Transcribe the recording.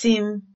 sị m